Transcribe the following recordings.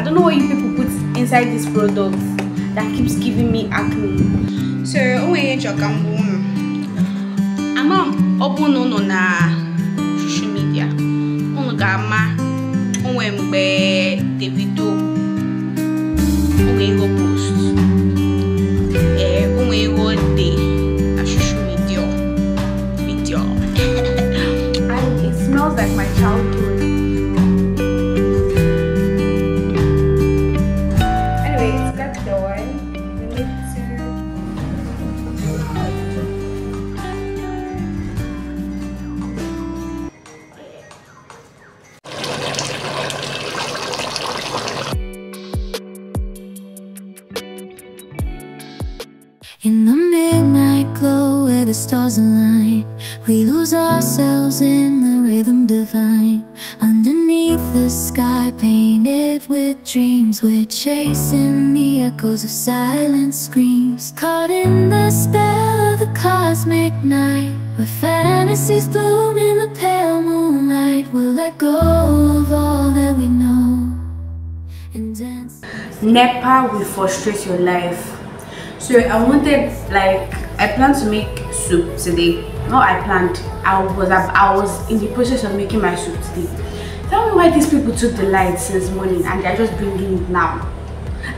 I don't know what you people put inside this product that keeps giving me acne. So, onwe eji ọkamgbu unu? Ama ọ bụ na unu social media, unu ga-ama onwe mgbe Davido onwe ihe the stars align We lose ourselves in the rhythm divine Underneath the sky painted with dreams We're chasing the echoes of silent screams Caught in the spell of the cosmic night Where fantasies bloom in the pale moonlight We'll let go of all that we know And dance NEPA will frustrate your life so I wanted like I plan to make soup today. No, I planned. I was I was in the process of making my soup today. Tell me why these people took the light since morning and they're just bringing it now.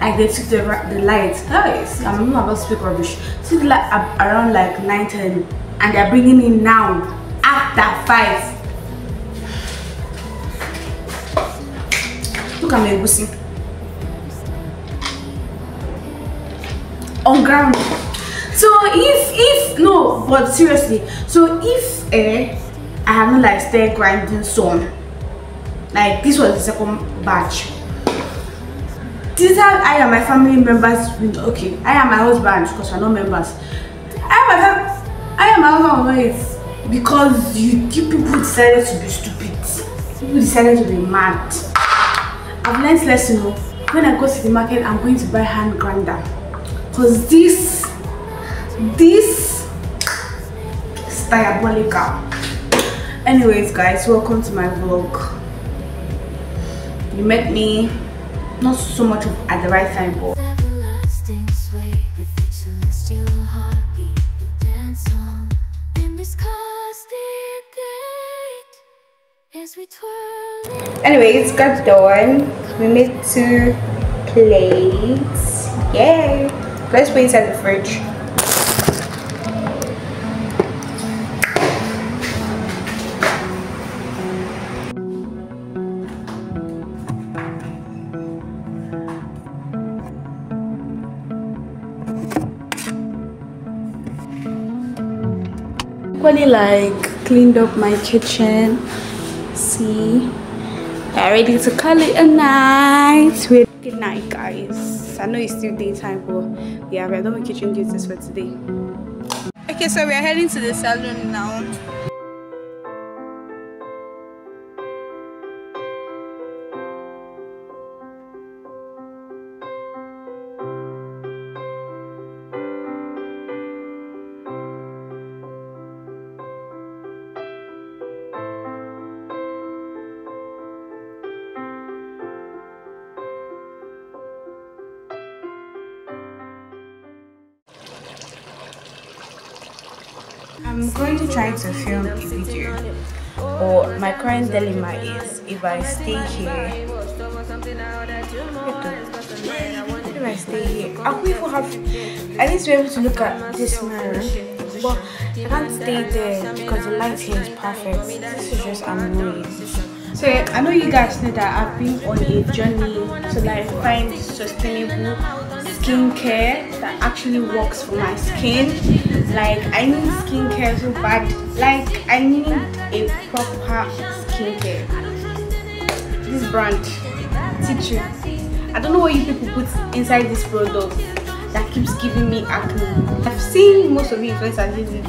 Like they took the the light. Guys, I'm not about to speak rubbish. Took like around like 9 10 and they're bringing it now after 5. Look at me, egusi. On ground so if if no but seriously so if eh i have not like stay grinding some like this was the second batch these are i and my family members okay i am my husband because we're not members i am my i am my husband because you, you people decided to be stupid people decided to be mad i've learned lesson you oh. know, when i go to the market i'm going to buy hand grinder because this this is diabolical anyways guys welcome to my vlog you met me not so much at the right time but Anyways, got done. We made two plates. Yay! Let's put inside the fridge. like cleaned up my kitchen see we're ready to call it a night good night guys i know it's still daytime but yeah we're done with kitchen duties for today okay so we're heading to the salon now I'm going to try to film a video. But my current dilemma is if I stay here, if I stay here, I will even have at least be able to look at this mirror. But I can't stay there because the light here is perfect. This is just annoying. So yeah, I know you guys know that I've been on a journey to like find sustainable skincare that actually works for my skin like i need skincare so bad like i need a proper skincare this brand teacher i don't know what you people put inside this product that keeps giving me acne i've seen most of you influencers using it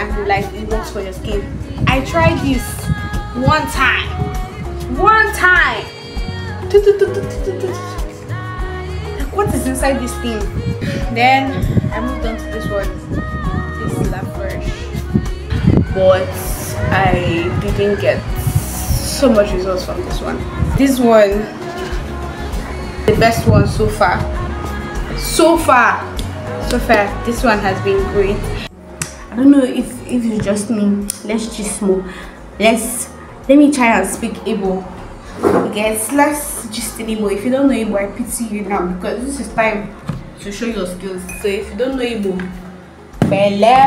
and like it works for your skin i tried this one time one time what is inside this thing then i moved on to this one but I didn't get so much results from this one. This one, the best one so far. So far, so far, this one has been great. I don't know if if it's just me. Let's just move. Let's let me try and speak Igbo. Guess let's just Igbo. If you don't know Igbo, I pity you now because this is time to show your skills. So if you don't know Igbo, Hello.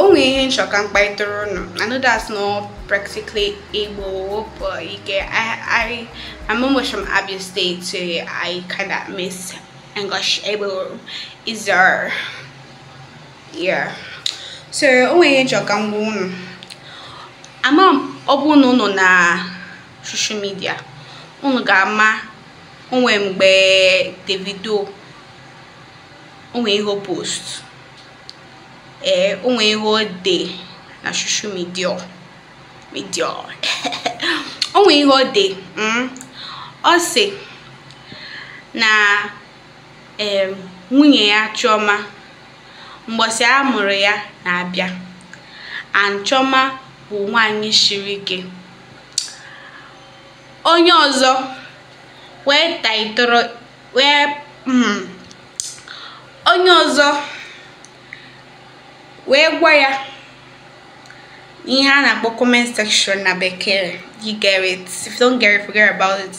o. Only in Shokan Paitoron. I know that's not practically able, but you get, I, I, I'm almost from Abia State, so I kind of miss English able Is there? Yeah. So, only in Shokan Boon. I'm on no na social media. Unu ga on onwe mgbe Davido onwe ihe post ee o ihe na social ihe ọ na nwunye ya Chioma mgbọsị a mụrụ ya na-abịa and Chioma bụ nwanyị siri ike onye ọzọ wee taitoro wee hmm. onye ọzọ wee gwa ya ihe a na-akpọ comment section na bekee you get it if you don't get it forget about it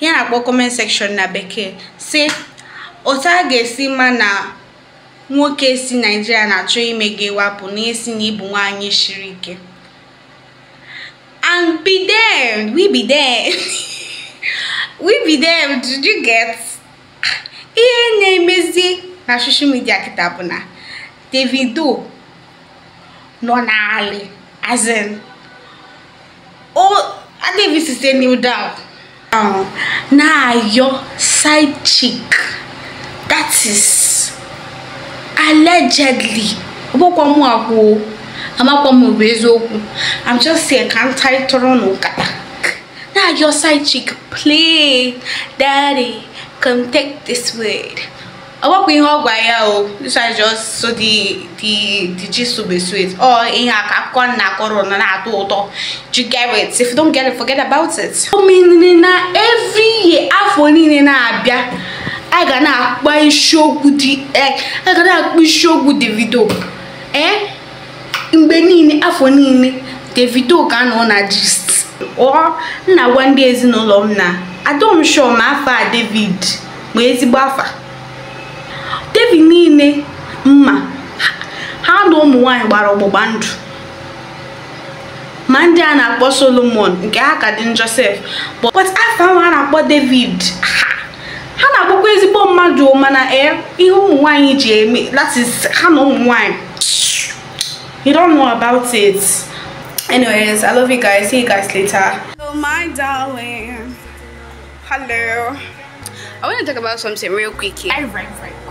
ihe a na-akpọ comment section na bekee si otu a ga-esi ma na nwoke si naijiria na-achọ ime gị wapụ na esi na ịbụ nwaanyị shiri ike and be there we be there we be there did you get ihe na-emezi na media kịta bụ na davido nọ n'alị as in oh, I adịghị site new down Now your side chick that is allegedly i'm just saying, ka ntarị tụrụ n'ụkata na-ayọ side chick please, daddy come take this word ọgbakọ ihe ọgwa ya o this is just so the the gist will be sweet ọ ihe aka akụkọ nna akọrọ na na-atọ ụtọ you get it if you don't get it forget about it omenire na every year afọ niile na-abịa a ga na-akpa isiokwu dị e, a ga na-akpa isiokwu Davido ee mgbe niile afọ niile Davido ga nọ na gist ọ na-agwa ndị ezinụlọ m na adọm shọ ma afa David bụ ezigbo afa devi niile mma ha na ụmụ nwanyị gbara ọgbụgba ndụ ma ndị a na-akpọ solomon nke ha ka dị josef but afọ ahụ a na-akpọ david ha na-akpọkwa ezigbo mmadụ mana ee eh, ihe ụmụ nwanyị ji eme that is ha na ụmụ nwanyị you don't know about it anyways i love you guys see you guys later hello my darling hello i want to talk about something real quick here. I, right, right.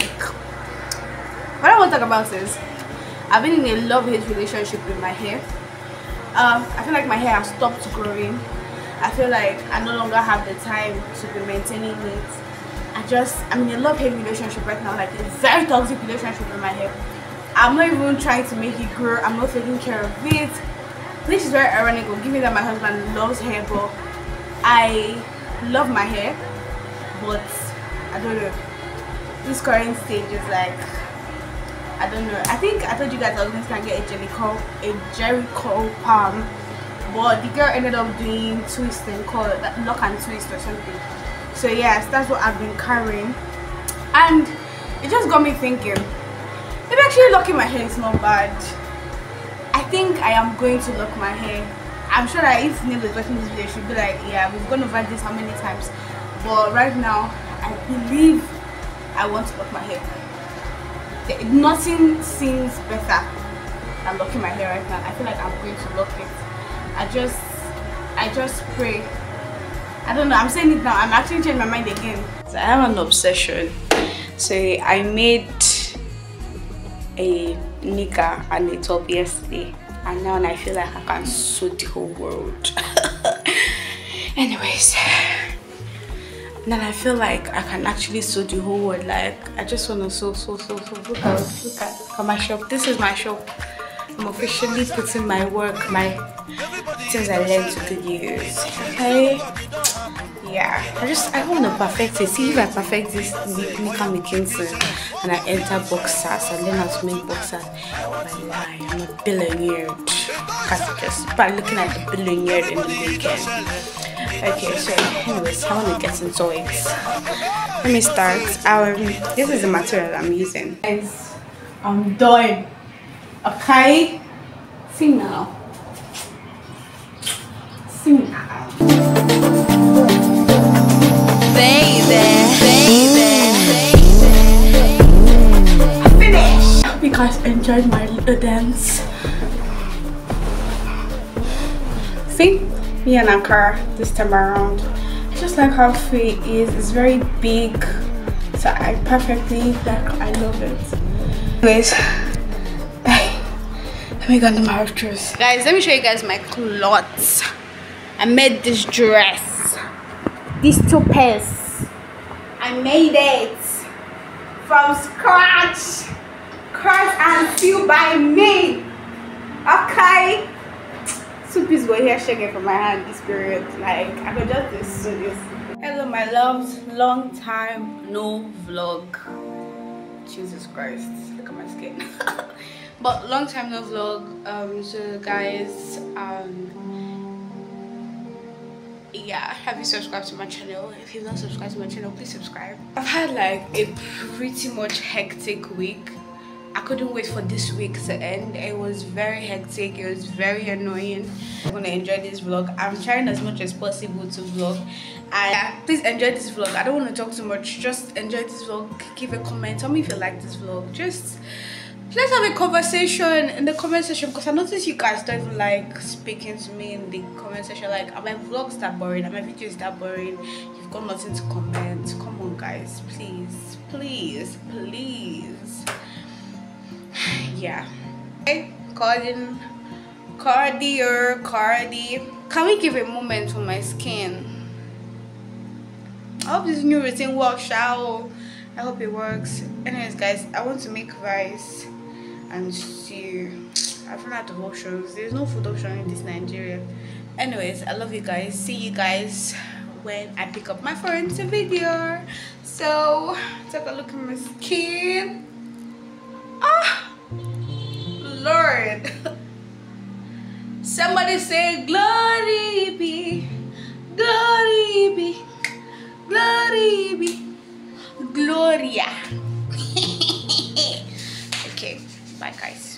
what I want to talk about is I've been in a love-hate relationship with my hair. Um, I feel like my hair has stopped growing. I feel like I no longer have the time to be maintaining it. I just, I'm in a love-hate relationship right now, like a very toxic relationship with my hair. I'm not even trying to make it grow. I'm not taking care of it. This is very ironic, given that my husband loves hair, but I love my hair, but I don't know. This current stage is like I don't know. I think I told you guys I was going to get a Jericho, a Jericho palm. But the girl ended up doing twisting called lock and twist or something. So yes, that's what I've been carrying. And it just got me thinking. Maybe actually locking my hair is not bad. I think I am going to lock my hair. I'm sure that if Neil is watching this video, she'll be like, yeah, we've gone over this how many times. But right now, I believe I want to lock my hair nothing seems better than locking my hair right now. I feel like I'm going to lock it. I just, I just pray. I don't know, I'm saying it now. I'm actually changing my mind again. I have an obsession. So I made a nika and a top yesterday. And now I feel like I can suit the whole world. Anyways. Then I feel like I can actually sew the whole world. Like I just wanna sew, sew, sew, sew. Look at, look at, look at my shop. This is my shop. I'm officially putting my work, my things I learned to use. Okay. Yeah. I just I wanna perfect it. See if I perfect this Nika McKinsey and I enter boxers, I learn how to make boxers. My lie, I'm a billionaire. Because just by looking at the billionaire in the weekend. Okay, so anyways, how want to get into it. Let me start. Um, this is the material I'm using. Guys, I'm done. Okay? See now. See now. Baby, baby, baby. Finish. Hope you guys enjoyed my me an Ankara this time around. I just like how free it is. It's very big. So I perfectly like I love it. Anyways, bye. Let me go to my dress. Guys, let me show you guys my clothes. I made this dress. These two pairs. I made it from scratch. Curse and feel by me. Okay? two pieces were here shaking from my hand this period. Like, I could just do this. Hello, my loves. Long time no vlog. Jesus Christ. Look at my skin. but long time no vlog. Um, so, guys, um, yeah have you subscribed to my channel if you've not subscribed to my channel please subscribe i've had like a pretty much hectic week I couldn't wait for this week to end. It was very hectic. It was very annoying. I'm gonna enjoy this vlog. I'm trying as much as possible to vlog. And please enjoy this vlog. I don't want to talk too much. Just enjoy this vlog. Give a comment. Tell me if you like this vlog. Just let's have a conversation in the comment section because I noticed you guys don't even like speaking to me in the comment section. Like, are my vlogs that boring? Are my videos that boring? You've got nothing to comment. Come on, guys. Please, please, please yeah. Cardin, Cardier, Cardi. Can we give a moment to my skin? I hope this new routine works out. I hope it works. Anyways, guys, I want to make rice and stew. I've run out of options. There's no food option in this Nigeria. Anyways, I love you guys. See you guys when I pick up my phone to video. So, take a look at my skin. Lord. Somebody say, Glory be, glory be, glory be, Gloria. okay, bye guys.